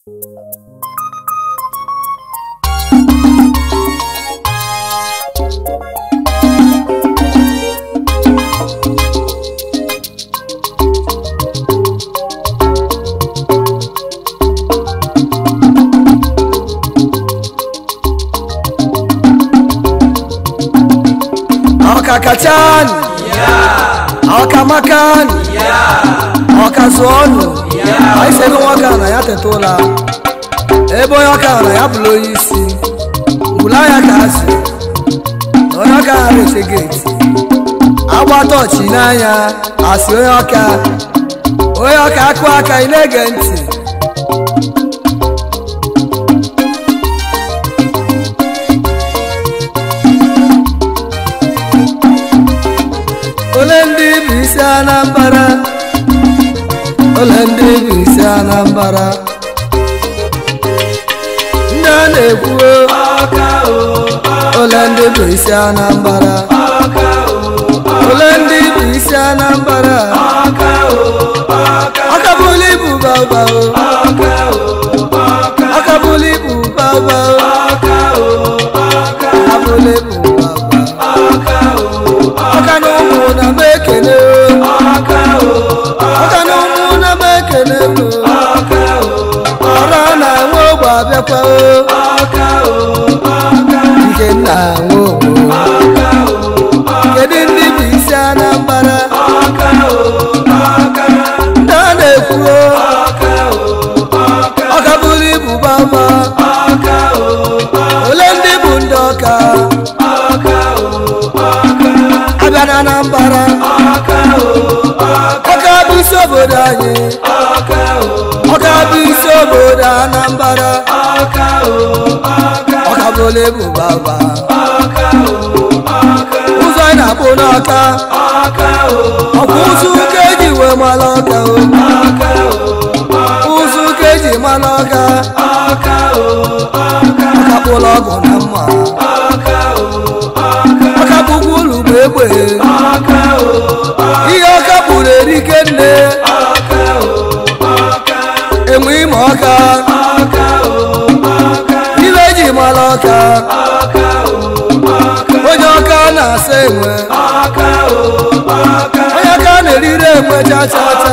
Akakatan, yeah. Akamakan, yeah. ọka zụọ ọnụ anyị ebe nwoke a na ya teta ụlọ eh, ebe onye ọka na ya bụrụ onye isi ngwụla ya ka azụ onye ọka ha na-ete geeti agbata ọchị n'anya asị onye ọka onye ọka akụ aka ị na-ege ntị ole ndị bụ isi Anambra ọla ndị bụ isi Anambara! ndị a na-ekwuo ọla ndị bụ isi ndị bụ isi Anambra akabụla ibu baba akabụla ibu ibu na ụmụ na abẹ́pẹ́ o. ọkà o ọkà. nke nna àwọn ògbó. ọkà o ọkà. kedu ndị bụ isi anambra. ọkà o ọkà. ndị a na-ekwu o. ọkà o ọkà. ọkà bụrụ ibu bama. ọkà o ọkà. ole ndị bụ ndị ọka. ọkà o ọkà. abịa na anambra. ọkà o ọkà. ọkà bụ isi obodo ọkà. bụ isi obodo Anambra ọkabụla ebu baba ụzọ ị na-akpụ n'ọka ọkwa ụzọ ụka eji wee mara ọka ụzọ ụka eji mara ọka ọgụ na mma ọka ụlọ bụ egbe ọkà ọkà ò ọkà ilé ìjìmọ̀ onye ọkà na-asa enwe ọkà ò ọkà onye ọkà na-erire enwe chachacha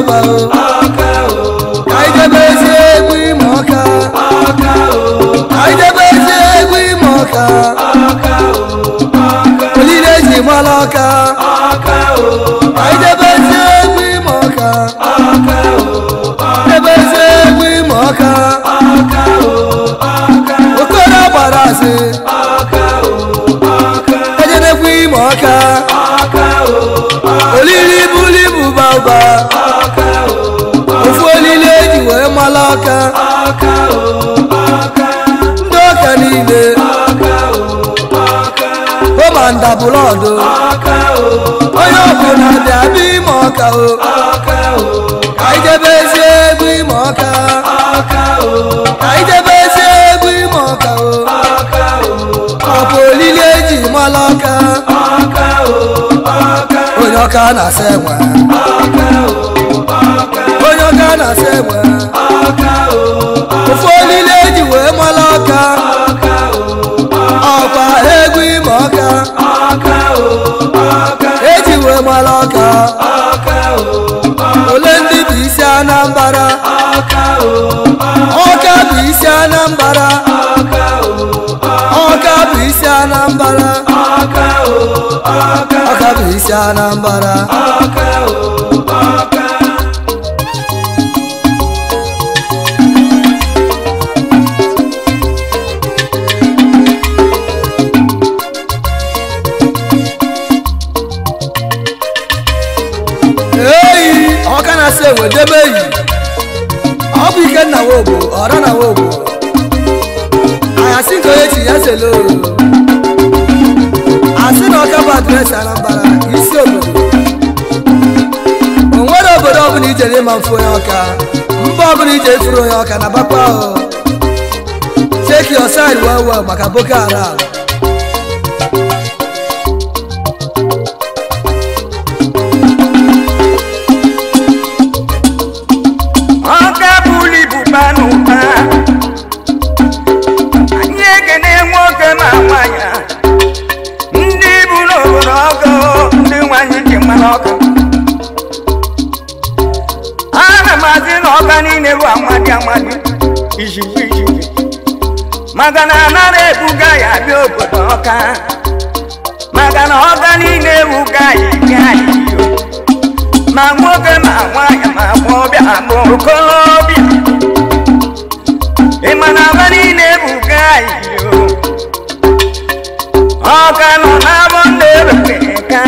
ọba o. ọkà o. àìjẹ́bẹ́ ṣe é gbé o. àìjẹ́bẹ́ ṣe é gbé ìmọ̀ ọ̀ka. o. ọkà o. olílé ṣì mọ́ lọ́ka. o. àìjẹ́bẹ́ ṣe é gbé ìmọ̀ ọ̀ka. o. àìjẹ́bẹ́ ṣe é gbé ìmọ̀ ọ̀ka. o. ọkà o. òkúrò padà sí. ọkà o. ọkà. ẹjẹ ní fún ìmọ̀ buli olilibulibu bàbá ofu olile eji wee mala aka ndị ọka niile ụmanda bụlọdụ onye ọbụla dị abịa ime ọka o anyị jebe ezi egwu ime ọka anyị jebe ezi egwu ime ọka o ọ bụ olile eji mala aka onyoka na-asa enwe onyoka na-asa enwe ofu olile eji wee mala ọka ọkwa egwu ime ọka eji wee mala ọka ole ndị bụ isi anambara ọka bụ isi anambara ọka bụ isi anambara ọka ọka bụ isi Anambra eyi ọka na-asị ewedebe yi ọ bụ ike nna wogbo ọra na wogbo ayasị nke onye chi ya selo na Chinọkabatsa Anambra isi obodo o nwere obodo ọbụla ijere ịma mfụ onye ọka mba ọbụla ije furu onye ọka na bakwa ahụ cheki your side well well maka Boko ala maka na anara ebuga ya bịa obodo ọka maka na ọka niile ewuga ya ike anyị ma nwoke ma nwaanyị ma gbọbịa ma okorobịa ịma na agba niile ebuga anyị ọka nọ n'abọ ndị ewere ka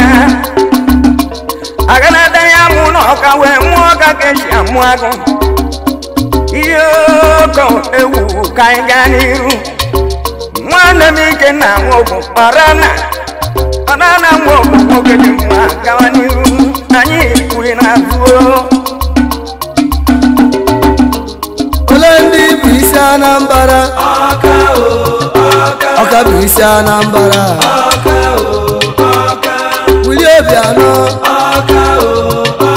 aganata ya mụ na ọka wee nwụọ ọka ka esi amụ agụ ihe ogo ewu ka anyị gaa n'iru nwanne m ike na nwoke ọrana ọrana nwoke nwoke dị mma gawa n'iru anyị kwughị na abụọ ole ndị bụ isi anambra ọka bụ isi anambra wuli obianọ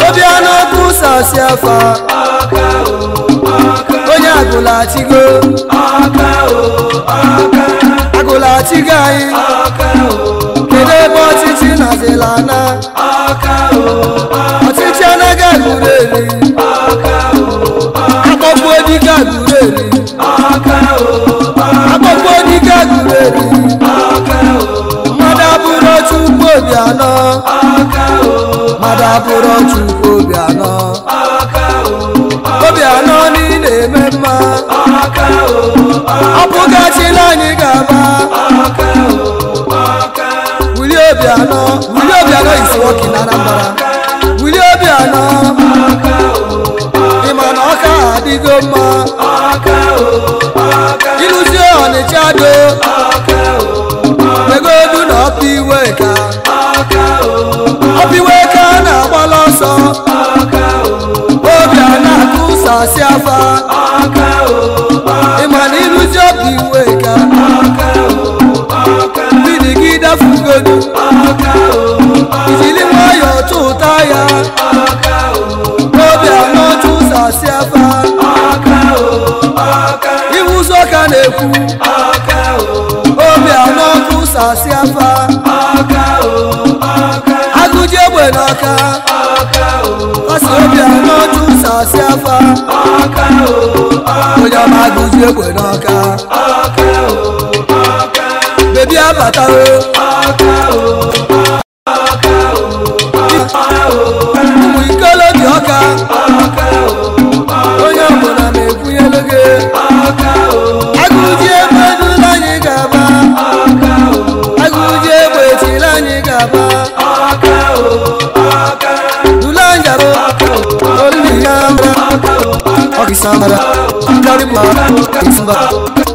obianọ bụ sasị afa ní àgòlà àti gbó. ọkà o ọkà. àgòlà àti gàáyé. ọkà o. kéde bọ́ títí nàzẹ̀ lànà. ọkà o ọkà. ọtí tí ẹnẹgẹ lùrẹ̀ ni. ọkà o ọkà. akọ́kọ́ onígà lùrẹ̀ ni. ọkà o ọkà. akọ́kọ́ onígà lùrẹ̀ ni. ọkà o ọkà. mọ́dàbúrọ̀ tún gbòdì àná. ọkà o ọkà. mọ́dàbúrọ̀ tún gbòdì àná. ọkà o ọkà. gbòdì àná ní lèmẹ́ gaba ọka o ọka ọbụgasịla anyị gaba ọka o ọka wuli obi anọ wuli obi anọ isi nwoke na anambra wuli obi anọ ọka o ọka ịma na ọka adịgo mma ọka o ọka ịlụzi ọnịcha do ọka o ọka ego du na ọpụ iwe ka sàṣẹ afa. o ọkẹ. ìmọ̀ nínú tí ó ìka. ọkẹ o ọkẹ. bídì kí dá fún gbòdò. o ọkẹ. ìjìlí wọn yọ tó táyà. ọkẹ o ọkẹ. lóbi àná tún sàṣẹ afa. ọkẹ o ọkẹ. ìwúsọ̀kà lè kú. ọkẹ o ọkẹ. lóbi àná tún sàṣẹ afa. ọkẹ o ọkẹ. agúnjẹ́ wẹ̀ o ọkẹ. kọ́sì lóbi àná na-asị afa onye ọma agụzi egwe n'ọka bebi abatawo ụmụ ikolo dị ọka onye ọbụla na-ekwunyelu gị Pakistan baba, Bloody boy,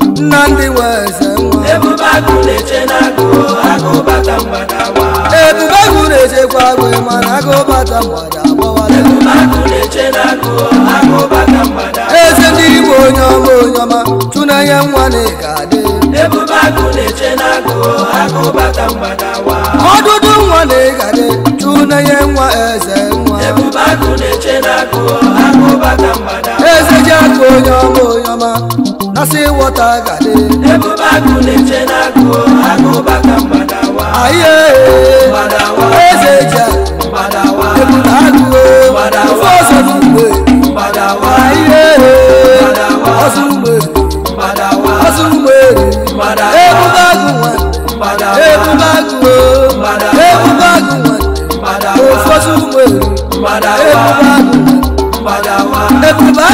Nnamdi Weze nwa ebube agụ na-eche n'agụ agụ mgbada na mana agụ bata mgbada agbawala na eze ndị Igbo onye ọma onye ọma tụnanya nwa na ị ọdụdụ nwa na ị tụnanya nwa eze nwa ebubakụ na-eche n'akụ akụbaka mgbada eze ji akụ onye gade ebubakụ na-eche n'akụ akụbaka aye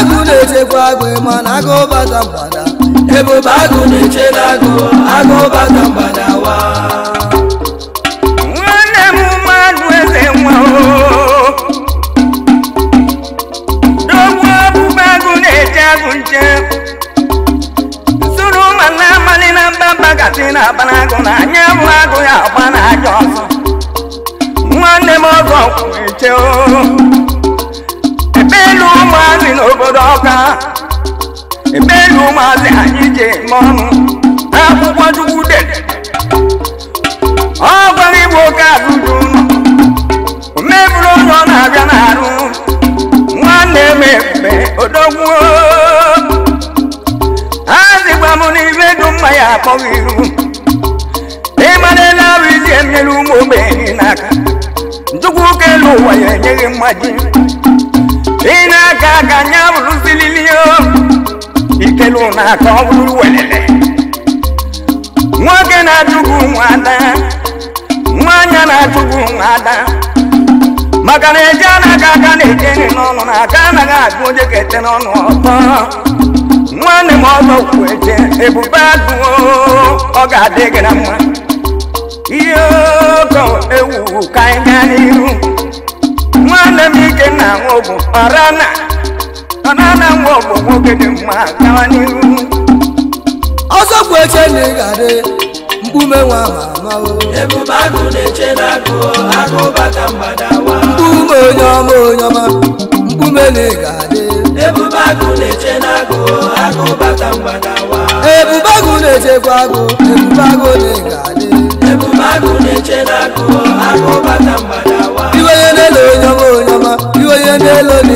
agụ na-echekwa agụ na agụ bata mgbada ebube agụ na-eche na agụ agụ bata mgbada wa nwanne m mmadụ eze nwa dogbu ọbụba agụ na-eche agụ nche sụrụ mana amalị na mba mba gasị na-aba na agụ na anya bụ agụ ya agba aja ọzọ nwanne m ọzọ kwụ eche o ụmụazị anyị ji eme ọnụ akwụkwọ chukwu de ọ gwara igbo oke azụju o meburu onye ọ na-abịa n'arụ nwanne m ebube odogwu azịgba m n'ibe dum mma ya akpọghị iru ịmara ele arụ isi emere ụmụ ogbenye n'aka chukwu ka elu ụwa ya enyeghị mmaji ị na-aka aka nya ụlọ na-aka ọ bụrụ welele nwoke na-ajụgbu nwada nwaanyị na-ajụgbu nwada maka na eje anaghị aka na-eje nri n'ọnụ na aka anaghị agụ onye ga-ete n'ọnụ ọtọ nwanne m ọzọ kwuo eje ebube agụo ọ ga-adị gị na mma ihe ogo ewu ka anyị gaa n'ihu nwanne m ike na nwogu ọrana na nwa nwoke dị mma gawa n'ihu ọzọ bụ eche na ị mkpume nwa ma ebube na na mkpume onye ọma onye ọma mkpume na ị ebube agụ na na na-echekwa agụ ebube agụ na ị ga onye ọma onye ọma n'elu na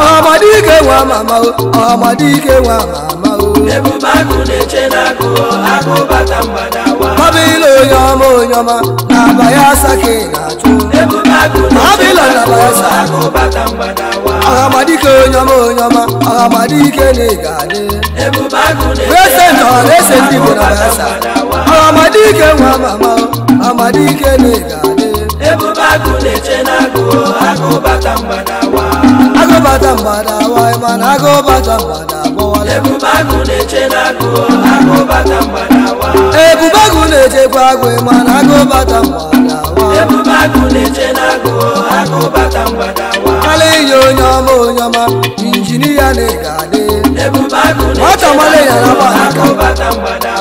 ọmadike nwa mama ọmadike nwa mama ebube akụ na-eche n'akụ akụ bata wa. ọbịla onye ọma onye ọma na-aba ya asake na-achụ ebube akụ na-eche n'akụ akụ bata mgbadawa ọhamadike onye ọma onye ọma ọhamadike na-egade ebube akụ na-eche n'akụ bata mgbadawa ọhamadike nwa mama ọhamadike na-egade ebube akụ na-eche n'akụ akụ bata wa. bata mgbada wai na agụ bata mgbada agbọwala ebube agụ na-echekwa agụ mana agụ bata mgbada ala ihe onye ọma onye ọma injinia na-ega adị nwata mmadụ ya na bata mgbada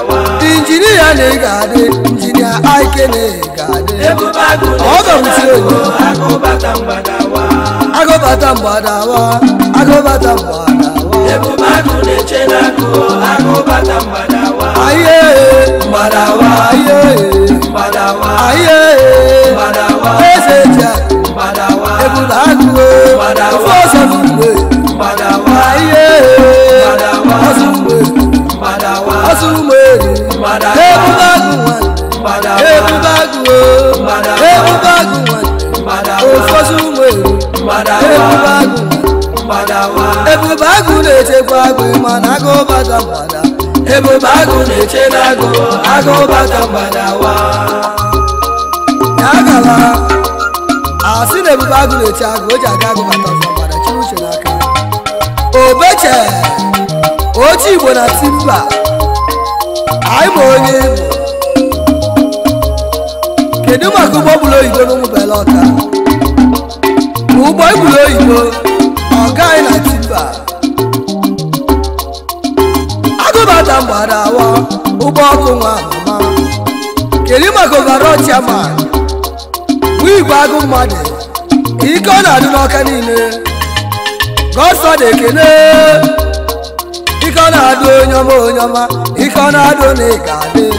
injinia na ị ga-adị injinia aike na ị ga-adị ọgọmtiri onye agụbata mgbadawa agụbata mgbadawa aye mgbadawa aye mgbadawa aye mgbadawa eze ji mgbadawa ebula agụwe ofe ọsọ n'ugbe mgbadawa aye ebu bagu wan ebu bagu o ebu bagu wan ofosu mo ebu bagu wan ebu bagu na-echekwa agụ ma ebu bagu na-eche na agụ agụ bata mgbada wa ya gala ebu bagu na-eche agụ o ji aga obeche oche igbo anyị bụ onye kedu maka ụgbọ bụrụ oyibo na ụmụbele ụgbọ gburu oyibo ọ gaghị na tipa agụbata mgbada awa ụgbọ ọkụ nwa mama kedu maka overo chiama nwa igwe agụ mmadụ ike ọ na-adị n'ọka niile gọsọ na ekene ike ọ na-adị onye ọma onye ọma ikonado na igade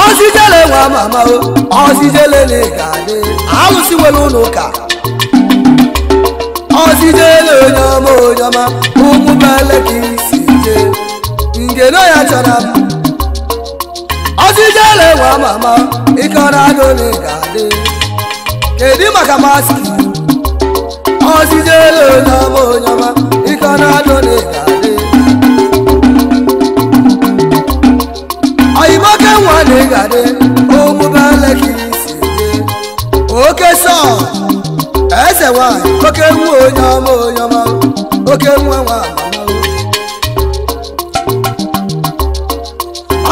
ọsijele nwa mama o ọsijele na igade alụsiwela ụlọ ụka ọsijele onye ọma onye ọma ụmụ bele ka isi je ngeno ya chọrọ mma ọsijele nwa mama ikonado na igade kedu maka maski ọsijele onye ọma onye ọma kana dole gare ayi make wane gare o mu bala ki siye oke so ese wa oke mu oyan mo oyan ma oke mu wa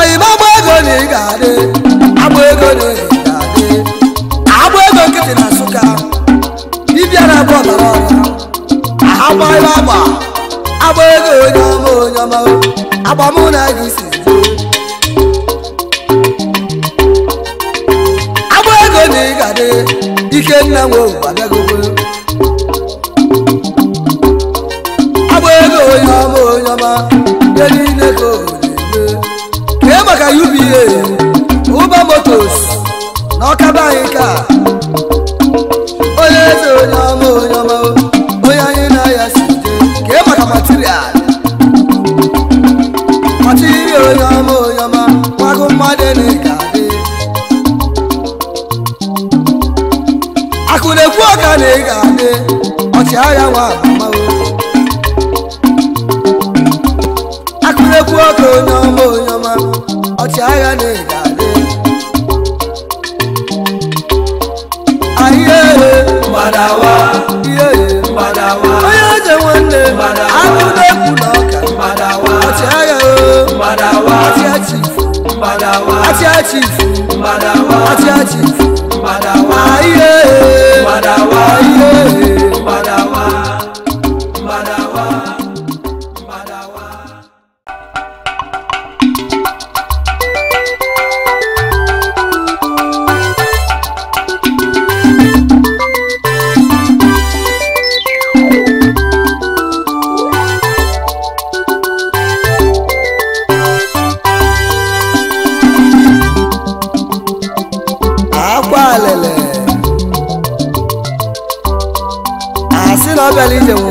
ayi ma gbo ego ni gare agbo ego ni gare agbo ego nkịtị na nsụka ibi ara bụ ọbara agbara agba agba ego onye ọma onye ọma agba mụ na gị si agba ego na ị ga-adị ike nna nwe ụwa bịagogo agba ego onye ọma onye ọma nye niile ka o na-eme kee maka uba ụba na ọkaba anyị ka onye eze onye ọma onye ọma mmadụ na-ega akụ na-ekwu ọka na ị ga-adị ọchịagha nwa amawo akụ na-ekwu ọka onye ọma onye ọma ọchịagha na ị ga-adị ahịa ihe mbadawa ihe mbadawa onye eze nwanne akụ na Mbadawa achi Mbadawa Ati achi Mbadawa Mbadawa Mbadawa Mbadawa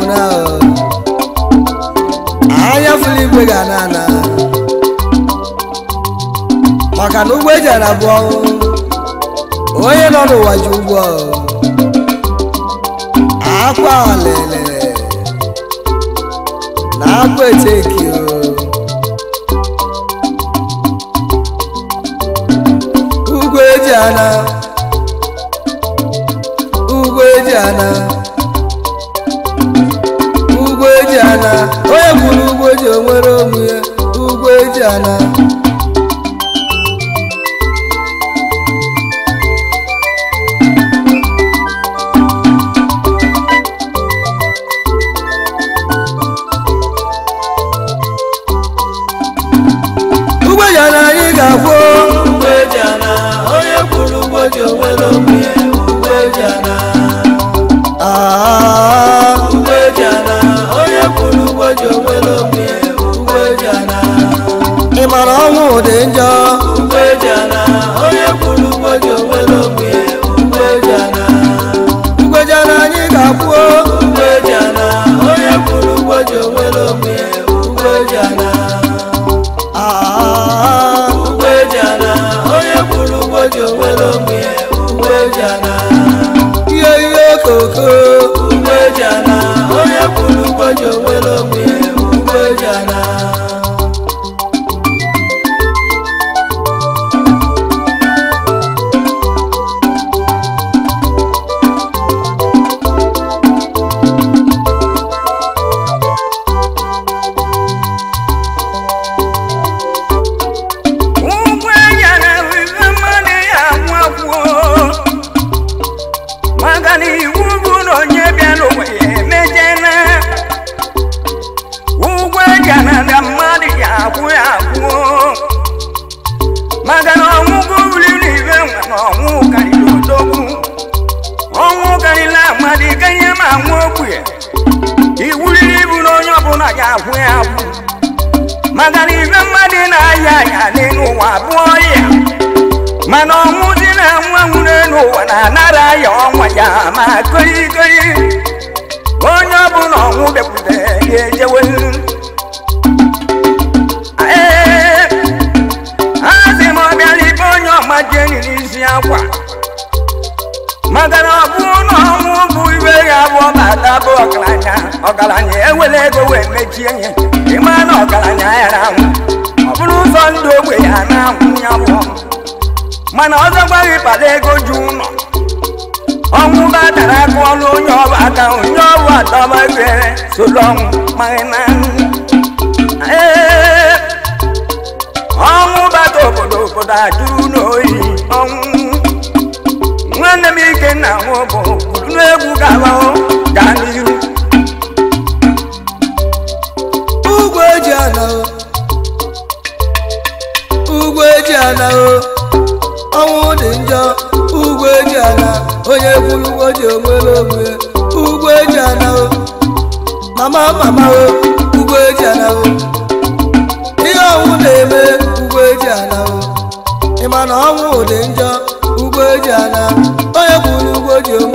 na ahịa fụlụ igwe ga na ana maka na ụgbọ ejiara abụ bụ onye nọ n'ụwa ji ụgbọ ụgwọ akwa olele na akwa eteki e eji ana ugwe ana Jana. ọgaranya ewere ego wee mechie ihe ịma na ọgaranya ya anwụ ọ bụrụ ụzọ ndụ ogbe ya na-anwụ ya mana ọzọ gbaghị kpara ego ji ụlọ ọnwụ ba dara aka ọrụ onye ọba aka onye ọbụ adọba ghere soro ọnwụ maghị na ọnwụ bata obodo obodo ajụrụ n'oyi ọnwụ nwanne m ike na nwụ bụ buru n'egwu gaba gaa n'iru ala o ugwu eji ala o ọnwụ dị njọ ugwu eji ala onye kwuru ụgwọ ji onwere onwe ugwu eji ala o mama mama o ugwu eji ala o ihe ọnwụ na-eme ugwu eji ala o ịma na ọnwụ dị njọ ugwu eji ala onye kwuru ụgwọ ji onwe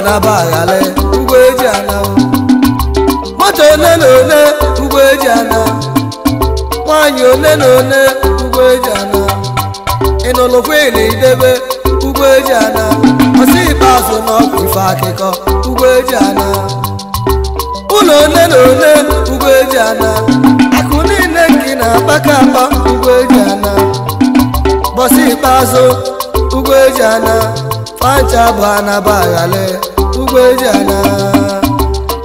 anabaghị ala ugbo eji ala moto ole na ole ugbo eji ala nwaanyị ole na ole ugbo eji ala ịnụlụkwe na idebe ugbo eji ala ọsị ikpeazụ na ọgwụ ife akụkọ ugbo eji ala ụlọ ole na ole ugbo eji ala akụ niile nke na-akpaka akpa ugbo eji ala bọsị ikpeazụ ugbo eji ala Pancha bụ anabaghale ugwejana, eji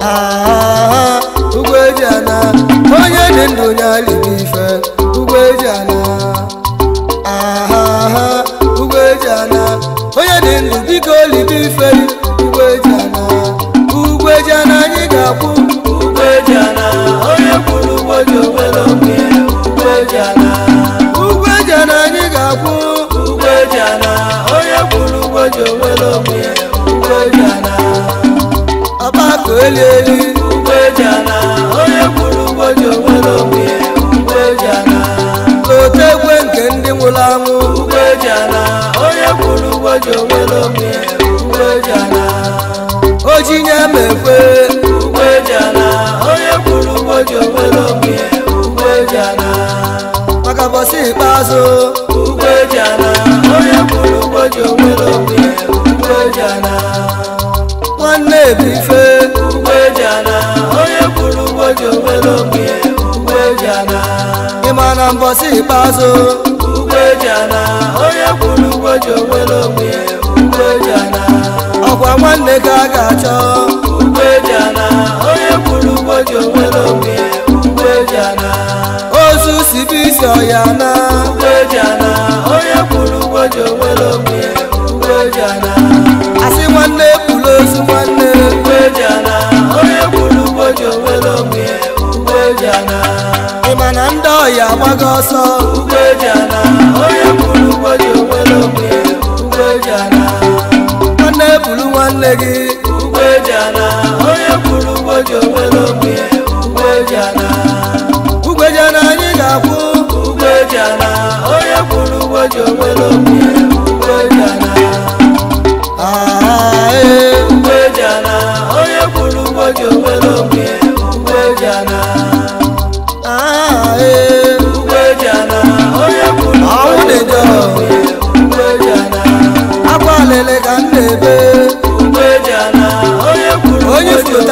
ana aha ugbo eji ana onye dị ndụ nye alibi ife ugbo eji ana aha ugbo eji ana onye dị ndụ biko olibi ife ji onwe n'ogbe ugbo eji ala ọba ka elu elu ugbo eji ala onye kwuru ugbo ji onwe n'ogbe ugbo eji ala ote egwe nke ndị nwụrụ jana nwanne ebife ugbe jana onye kwuru ugbo ji obelogbe ugbe jana ịma na mbọsị ikpeazụ ugbe jana onye kwuru ugbo ji obelogbe ugbe jana ọkwa nwanne ka a ga-achọ ugbe jana onye kwuru ugbo ji obelogbe ugbe jana ozu sibi isi ọya na ugbe jana onye kwuru ugbo ji ugbe jana ozu nwanne onye gburu ugboji onwere onwe ụgwọ ị ma na ndị ọhịa agbago ọsọ onye gburu ugboji onwere onwe nwanne ebulu nwanne gị onye eji ugboji onwere onwe ugwejana anyị ga-akwụ onye gburu ugboji onwere onwe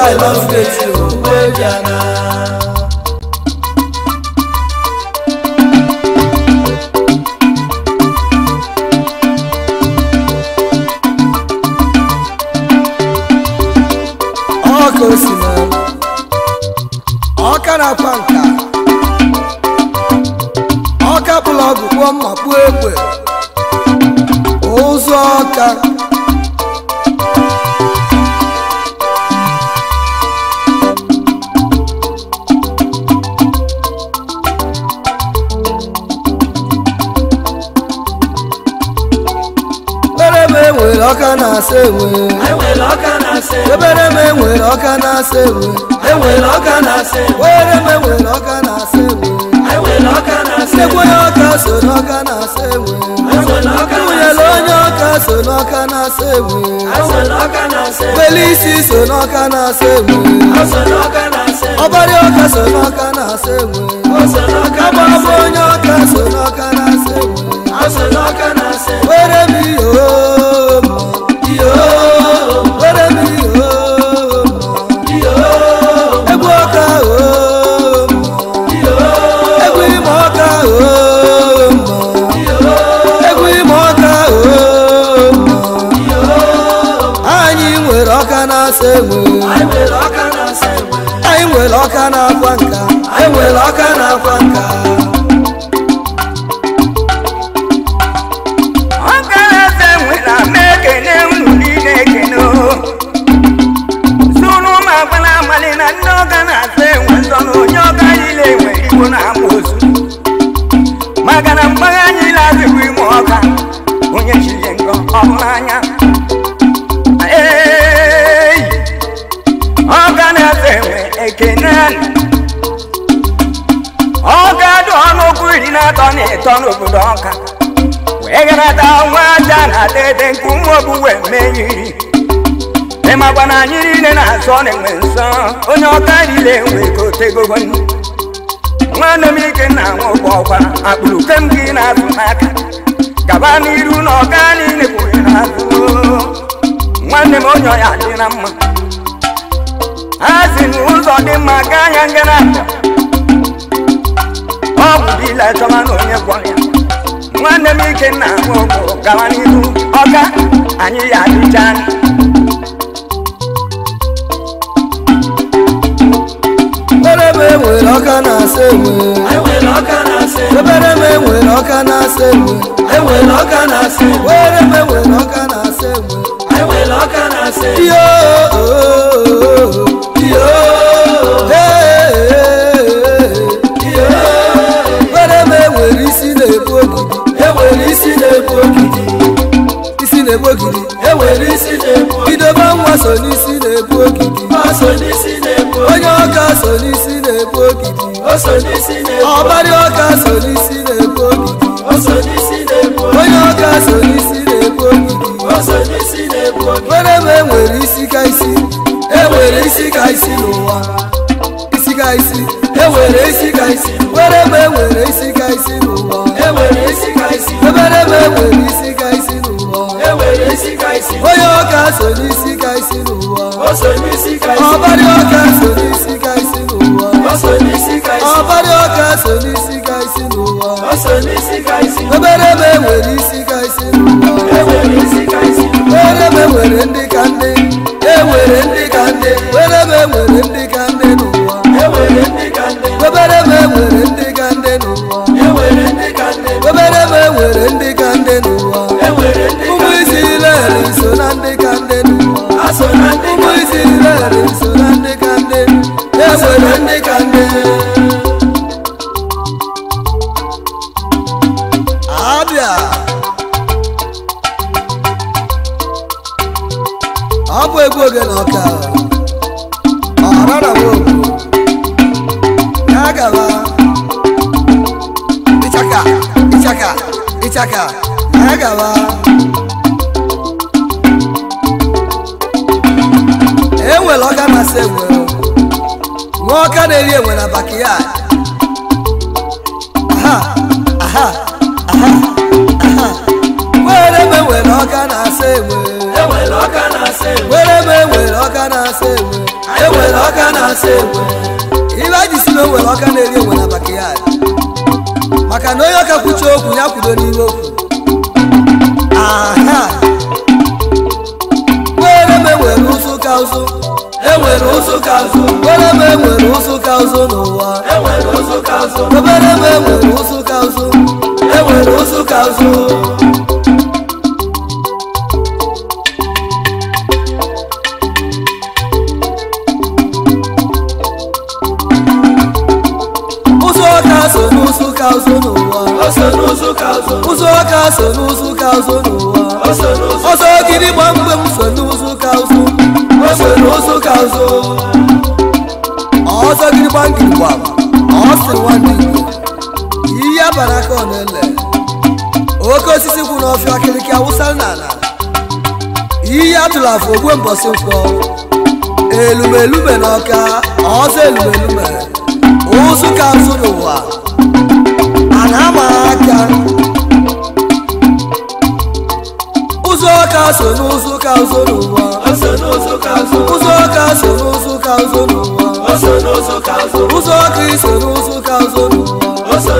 I love it. enwere ọka na-asa enwe ebere m enwere ọka na-asa enwe enwere ọka na-asa enwe were m enwere ọka na-asa enwe sekwonye ọka so n'ọka na-asa enwe nwunyere onye ọka so n'ọka na-asa enwe felisi so n'ọka na-asa enwe ọbara ọka so n'ọka na-asa enwe agbaba onye ọka so n'ọka na-asa enwe were m ihe enwe ọka na-akwa nka anyị nwere ọka na-akwa nka ụtọ n'obodo ọka wee garata nwa aja na dede nke ụmụ obu wee meriri ịmakwa na anyị niile na-azọ na-enwe nsọ onye ọka niile nwee ka otegogo Nwa m ike na nwoke ọkwa akpụrụ kem gị na-azụ n'aka gaba n'iru na ọka niile na n'azụ nwanne m onye ọya dị na mma A si n'ụzọ dị mma gaa anya nga na-abịa ọ bụ bila chọba na onye gwọrọ ya nwanne m ike na nwogo gawa n'ihu ọka anyị ya adịcha ebere m enwere ọka na-asa enwe ebere m enwere ọka na-asa enwe were m enwere ọka na-asa enwe ihe ogidi isi na-egbu ogidi enwere isi na-egbu idoba nwa so n'isi na-egbu ogidi onye ọka so n'isi na-egbu ogidi ọbari ọka so n'isi na-egbu ogidi onye ọka so n'isi na-egbu ogidi were ebe enwere isi ka isi enwere isi ka isi n'ụwa isi ka isi enwere isi ka isi were ebe enwere isi ka isi n'ụwa ebere m enwere isi ka isi n'ụwa onye ọka so n'isi ka isi n'ụwa ọbarị ọka so n'isi ka isi n'ụwa ọbarị ọka so n'isi ka isi n'ụwa ebere m enwere isi ka isi n'ụwa ebere m enwere ndị ka ndị enwere ndị ka ndị ebere m enwere ndị ka it. okwu ya kwudo n'ihe okwu aha were m enwere ụzụ ka ụzụ enwere ụzụ ka ụzụ were m enwere ụzụ ka ụzụ n'ụwa enwere ụzụ ka ụzụ obere m enwere ụzụ ka ụzụ enwere ụzụ ka ụzụ calçou no ụzọ ka so n'ụzọ ka ụzọ n'ụwa ọsọ gịnị gba mgbe m so n'ụzọ ka ụzọ ọsọ n'ụzọ ka ụzọ ọsọ gịnị gba ngiri gba ọsị nwanne igbo ihe abara ka ọ na-ele oke osisi kwụ n'ọfịa akịrịkị awụsa n'ala ihe atụrụ afọ ogwe mbọsị mkpọ elumelu na ọka ọsọ elumelu ụzụ ka ụzọ n'ụwa na-amaaka ụzọ ụka so n'ụzọ ụka ụzọ n'ụwa ụzọ ụka so n'ụzọ ụka ụzọ n'ụwa ụzọ kristo n'ụzọ ụka ụzọ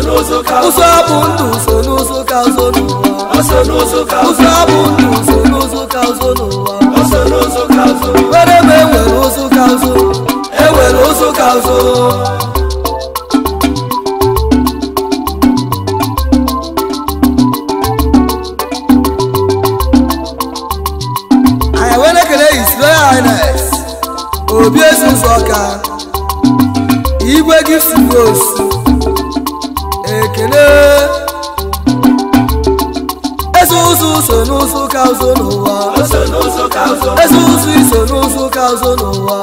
n'ụwa ụzọ bụ ndụ so n'ụzọ ụka ụzọ n'ụwa ụzọ bụ ndụ so n'ụzọ ụka ụzọ n'ụwa were ebe igwe susu ọka igwe gị suo osu ekele eze ụzụ so n'ụzụ ka ụzụ n'ụwa eze ụzụ iso n'ụzụ ka ụzụ n'ụwa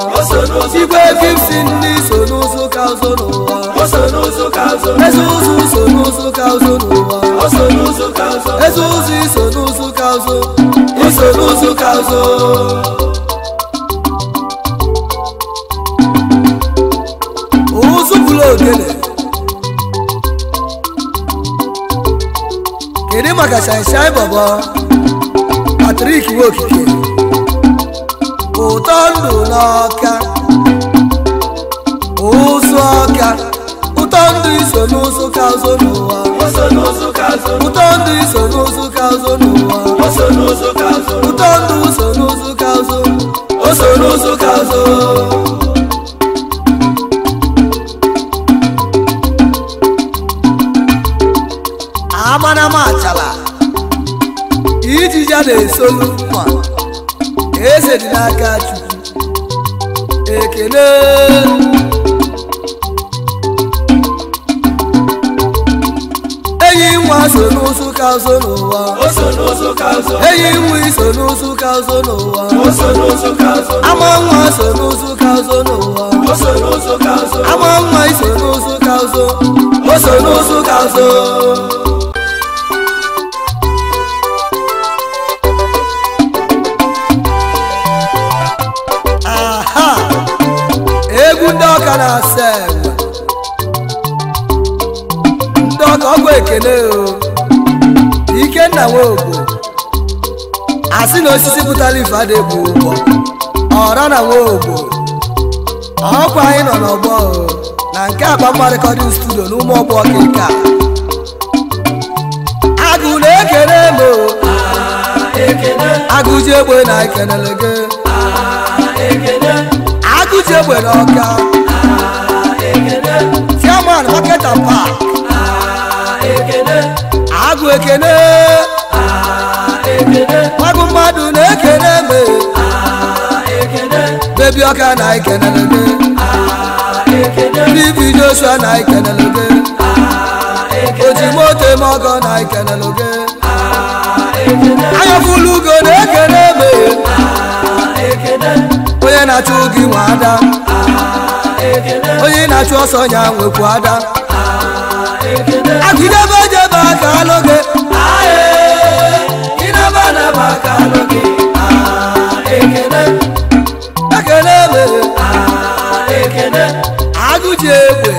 igwe gipsi ndị so n'ụzụ ka ụzụ n'ụwa eze ụzụ so n'ụzụ ka ụzụ n'ụwa eze ụzụ iso n'ụzụ ka ụzụ iso n'ụzụ ka ụzụ beleza. Queremos que sai sai babá. Patrick Wokike. Utondo noka. Usoka. Utondo iso nusu kauzo nuwa. o iso nusu kauzo nuwa. Utondo iso nusu kauzo. Utondo iso no ar. amanama chala, ijija na-esolu mma eze dị n'aka chukwu ekele enyi nwa so n'ụzụ ka ụzọ n'ụwa enyi nwa iso n'ụzụ ka ụzọ n'ụwa ama nwa so n'ụzụ ka ụzọ n'ụwa ama nwa iso n'ụzụ ka ụzọ o so n'ụzụ ka ụzọ ọka na-asa ndị ọka ọgwụ ekele o ikenna nwobo asị na osisi pụtara ife bụ ụgbọ ọra na nwobo ọkwa anyị nọ n'ọgbọ na nke akpa mmadụkọdị studio na ụmụ ọgbọ ọka agụ na-ekele m agụji egbe na ekelele gị agụji egbe ọka. ọketa ah. ah, pak agụ ah, ekene agụ mmadụ na-ekene me bebi ọka na ikenelebe bibi joshua na ikenelebe ojimoto eme ọgọ na ikenelebe anyafulu ugo na-ekene me onye na-achụ gị nwa ada onye na-achụ ọsọ ya nwekwu ada agụdebe jebe aka alụgị ekene mere agụji egbe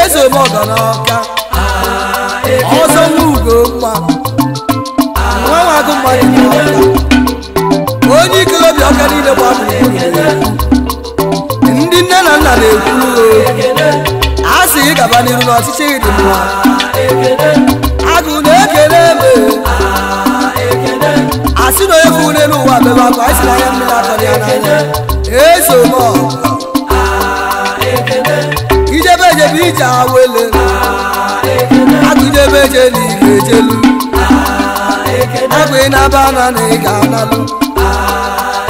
eze mọganaka ọzọ n'ugo mma nwa nwa agụ mmadụ n'ọka onye ike obi ọka niile gbadụ ndị nne na nna na ekwu a sị ị gaba n'iru n'ọchịchị dị mma agụ na-ekele eme a sị na onye bụ une n'ụwa bebe akwa anyị si n'anya mmiri atọ ya n'anya eso m ijebe ejebe ije awele agụdebe eje n'ike ejelu agụ ị na-aba na na ị ga-analụ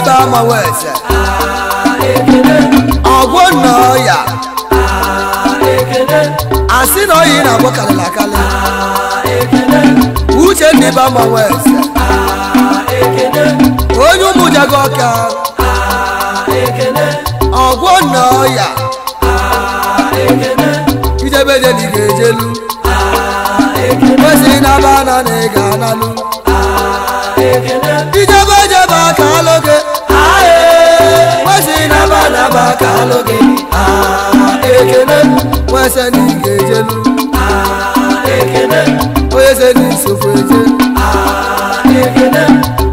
ita amawo ẹsẹ. ọgwọ nọ ya. asị na oyi na abụ kalịla kalị. uche ndị ba amawo ẹsẹ. onye ụmụ jago ọka. ọgwọ nọ ya. ijebe je na ị ga-ejelu. kwesịrị na aba na ị ga-analụ. ijebe jebe aka alụ gị. anaba ka alụ ah, gị ekene nwa sani ga ah, onye sani nsogbu eje ah,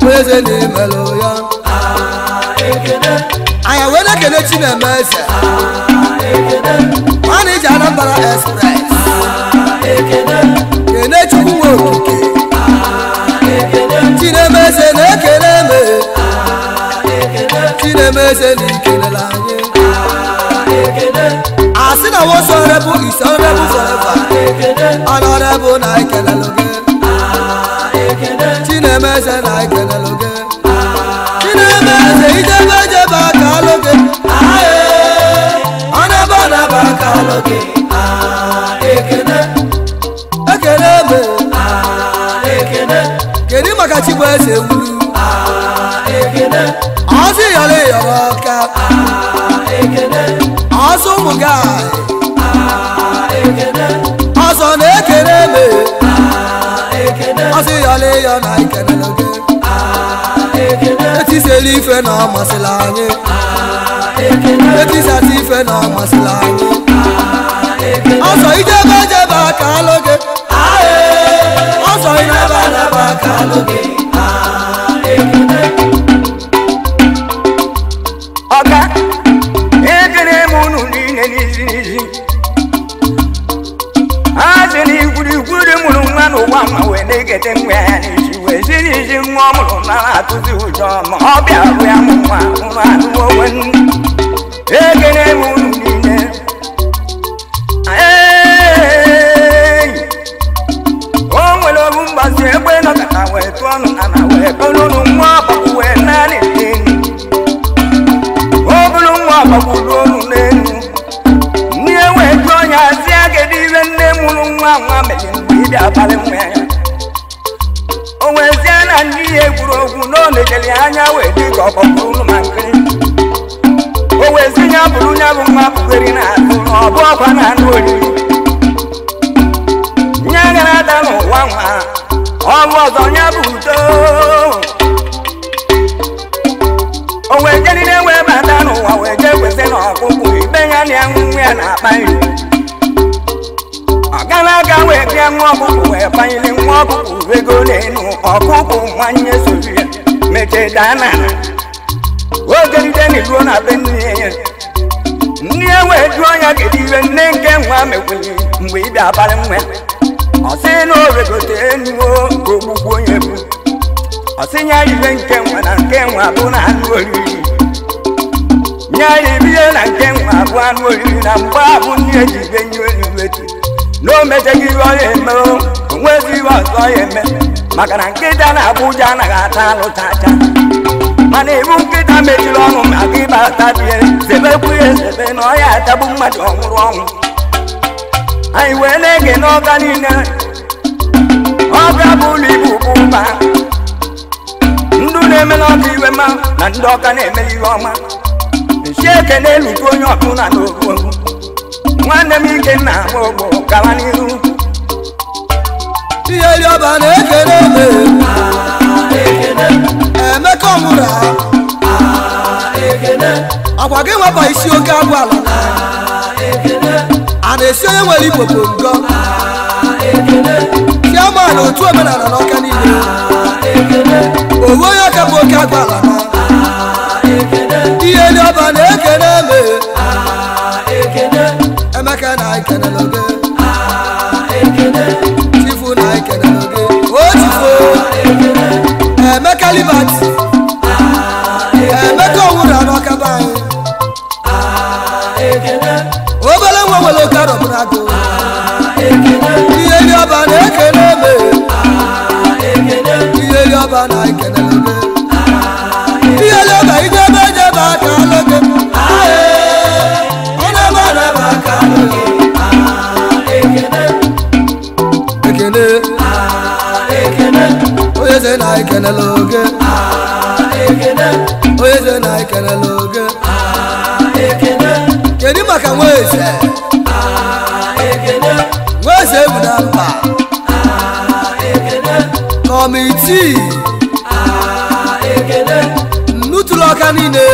onye sani melụ ya ekene anyị wee chineme eze ekene ọ na-eji anambra express kene chukwu nwe okike chineme eze na-ekene eme ti na-emeze na ekele na anyị asị na wo sọrebụ ise ọrebụ fọreva ọnọrebụ na ekelelụ gị ti na-emeze na ekelelụ gị ti na-emeze ijebe jebe aka alụ gị ọnebe ọnaba aka alụ gị kedu maka chigbu eze wuru ọsị yọrọ ịyọrọ ọka ọsọ ụmụ ga ọsọ na-ekele eme ọsị yọrọ ịyọ na ikelele gị etisela ife na ọmasịla anyị etisata ife na ọmasịla anyị ọsọ ijebe jebe aka alụ gị 什么？nwanne soro ya mechee daa n'ala ogeride na iruo na be nne ya nne ya wee jụọ ya kedu iwe nne nke nwa mekwenye mgbe ị bịa abalị nwa ọ sị na o regote enuo ka ogbugbu onye bụ ọ sị ya ibe nke nwa na nke nwa bụ na anụ oriri nye ya ibihe na nke nwa bụ anụ oriri na mgbe abụ nne ji ibe nye elu wetu na o mejeghị ihe ọ ya eme o nwezi ihe ọzọ ya eme maka na nkịta na Abuja anaghị ata alụta ata mana ibu nkịta mejiri ọnụ maka ịba atabie zebekwu ya ezebe na ọya atagbu mmadụ ọhụrụ ọnwụ anyị wee na-ege n'ọga niile ọbịa bụ ụlọ ibu mba. ndụ na-eme n'ọka iwe mma na ndị ọka na-eme ihe ọma nsi ekene lute onye ọbụla na ogbo nwanne m ike nna m ogbo gawa n'ihu tinyere ọba na-ekene eme emeka ọmụra akwa gị nweba isi oke agwụ ala a na-esi onye nwere igbo bụ ngọ chiaman otu omenala n'ọka niile owu onye ọka bụ oke agwụ ala tinyere ọba na-ekene eme emeka na ekenela oge Emeka Libat Emeka Owura n'ọka be anyị obere nwa nwere oke arọbụra gụ ihe ndị ọba na-ekene eme ihe ndị ọba na-ekene ekenela oge onye eze na ekenela oge kedu maka nwa eze. nwa eze bụ na mba kọmitii nnutụrụ ọka niile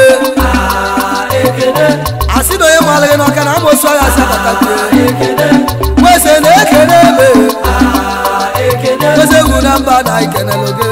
asị na onye malaghị n'ọka na amosu agha asị abata nweze na-ekene ebe nweze bụ na mba na ekenela oge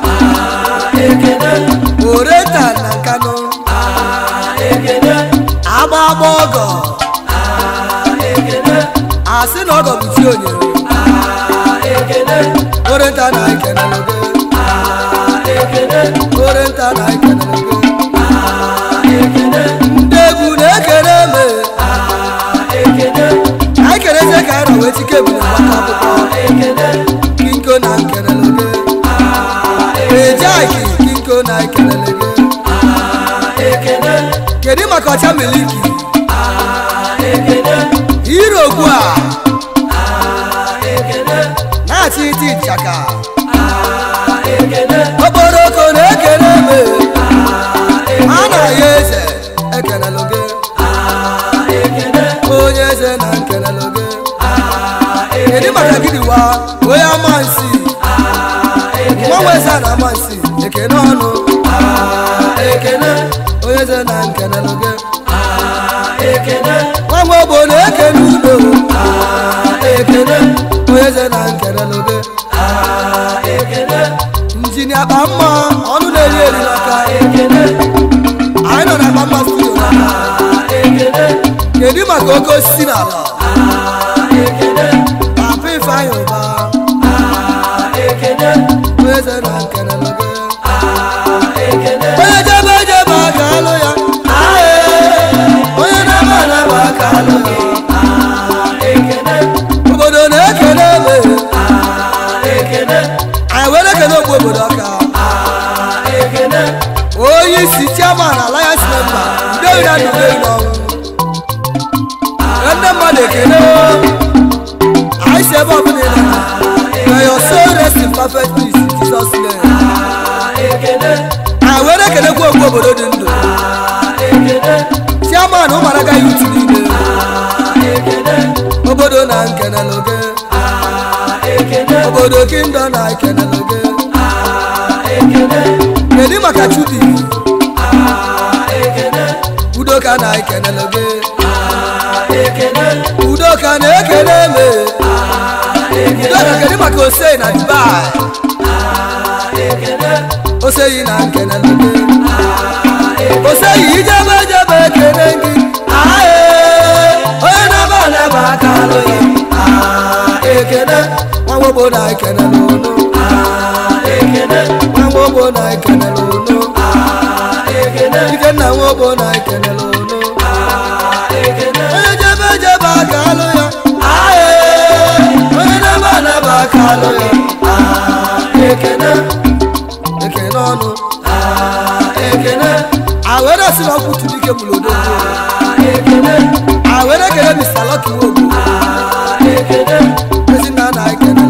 oreta na Kano amama ọgọ asị na ọgọ bụ chi onyere oreta na ekenere oreta na ekenere ndị egwu na-ekere eme ekerezi ka ara wee tike bụ na akwụkwọ abacha military hero ogua na-ati iti nchaka okporoko na-ekele me a na-ya eze ekelelu gị onye eze na nkelelu gị kedu maka gịdịwa onye amansi nwa nweza na amansi ekele ọnụ lode ah ekele, nji ni akpa mma ọnụ na-eri eri maka anyị nọ na mma studio na ekele, kedu maka oke osisi na ala ekene papa ifeanyị ụba ekene eze na nkene lode ekene onye jebe jebe aka alụ ya onye na-aba na-aba aka alụ kábíyèsí chairman alliance member david adùnlé ìlọrin ẹnẹ mọlẹkẹlẹ o àìsè bọ fún mi lẹnu ẹyọ sóòrè sí perfect peace jesus name. àwọn erékèlè kú òkú òbòdó di ndò chairman ụmụaka youth niile obodo na nkeneloge obodo kingdom na ekeneloge kedu maka chudi ya na ekenele gị udoka na ah, ekele me udoka ah, kedu maka osei na dubai ah, oseyi na nkenele gị oseyi ijebe jebe ekele gị eh. onye na-aba anaba aka alụghị ekele nwa gbogbo na ekenele ụlọ nwa gbogbo na ekenele ụlọ Ah, eh, ah, eh. eh, ah, awerekeremisalakiwobu esinanaekene